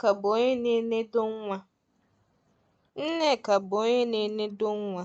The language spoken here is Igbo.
Nneka bụ onye na-enedo nwa. Nneka bụ onye na-enedo nwa.